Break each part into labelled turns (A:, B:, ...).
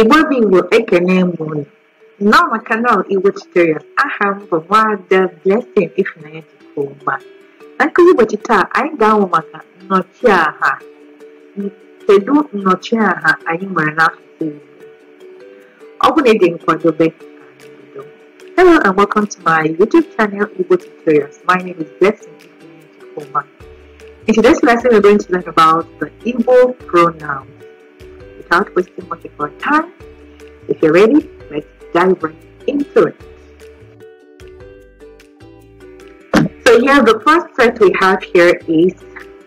A: Igbo bụ ekene mụrụ Nneoma kanal Igbo Tutorial aha m bụ Nwaada Blessing Ifunanya Chukwuma na nkụzi ụbọchị taa anyị ga-amụ maka nnọchiaha kedu nnọchiaha anyị nwere n'asụsụ Igbo ọ bụ na ị dị nkwadobe Hello and welcome to my YouTube channel Igbo Tutorials. My name is Blessing Ifunanya Chukwuma. In today's lesson, we're going to learn about the Igbo pronoun without wasting much of our time. If you're ready, let's dive right into it. So here, the first set we have here is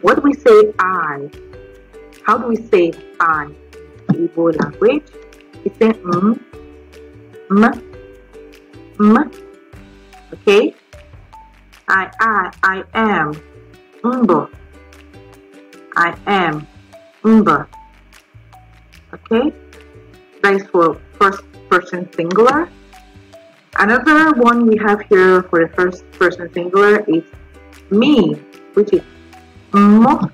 A: what we say I. How do we say I in Igbo language? It's an m, m, m, okay? I, I, I am, umbo. I am, umbo okay? Thanks for first person singular. Another one we have here for the first person singular is me, which is mo,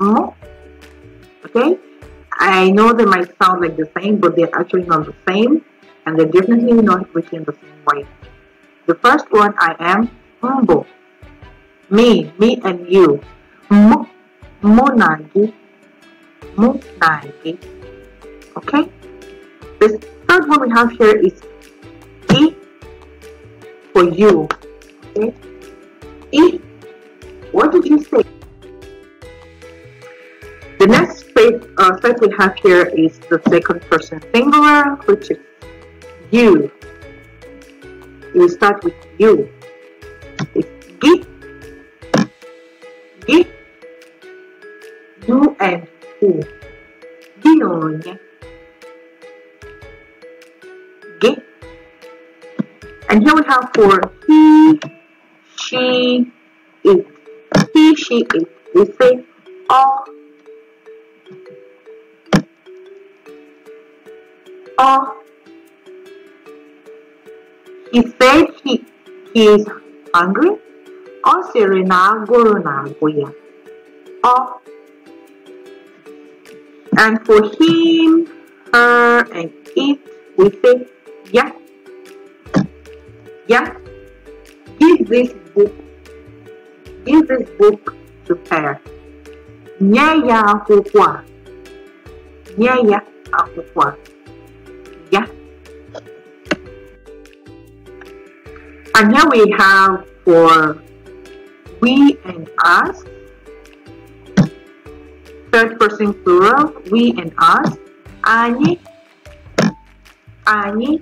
A: mo, okay? I know they might sound like the same, but they're actually not the same, and they're definitely not written the same way. The first one, I am humble. Me, me and you. Mo, mo move 90 okay The third one we have here is E for you okay E what did you say the next step, uh, we have here is the second person singular which is you you start with you it's G G you and U Ghione G and here we have for he she it he she it we say all all he said he, he is hungry. O Serena, na agụrụ na-agụ Ọ and for him, her, uh, and it, we say, yeah, yeah, give this book, give this book to her. Nyaya akwụkwọ Nyaya akwụkwọ Yeah. And now we have for we and us third person plural, we and us. Они, они,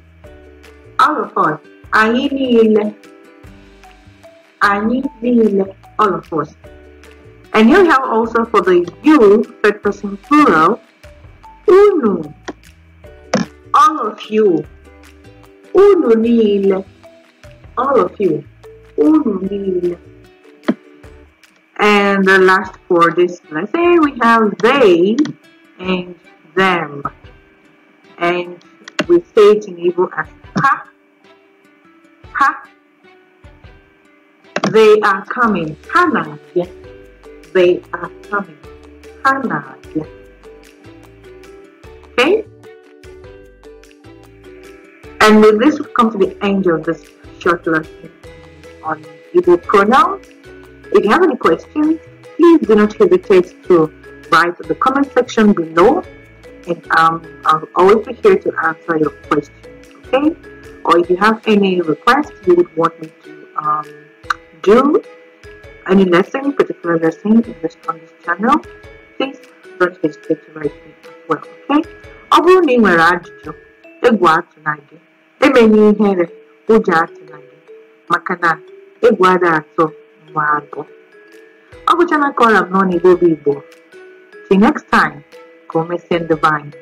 A: all of us. Они nil, они değil, all of us. And here we have also for the you, third person plural, uno, all of you. Uno nil, all of you. Uno nil. And the last four, this let's say we have they and them. And we say it in Igbo as ha, ha. They are coming. Hana, They are coming. Hana, Okay? And with this, we come to the end of this short lesson on Igbo pronouns. If you have any questions, please do not hesitate to write the comment section below and um, I'll always be here to answer your questions, okay? Or if you have any requests you would want me to um, do any lesson, particular lesson in this, on this channel, please don't hesitate to write me as well, okay? ọ bụrụ na ị nwere ajụjụ egwu atụna gị emenye ihere atọ Ako siya ng collab noon ni Bobby Bo. See you next time. Come send the vine.